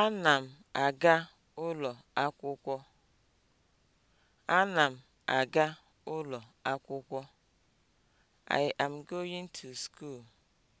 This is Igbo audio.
Ana m aga ụlọ akwụkwọ. Ana m aga ụlọ akwụkwọ. I am going to school.